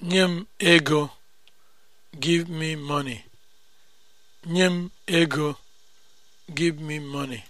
Nye m ego. Give me money.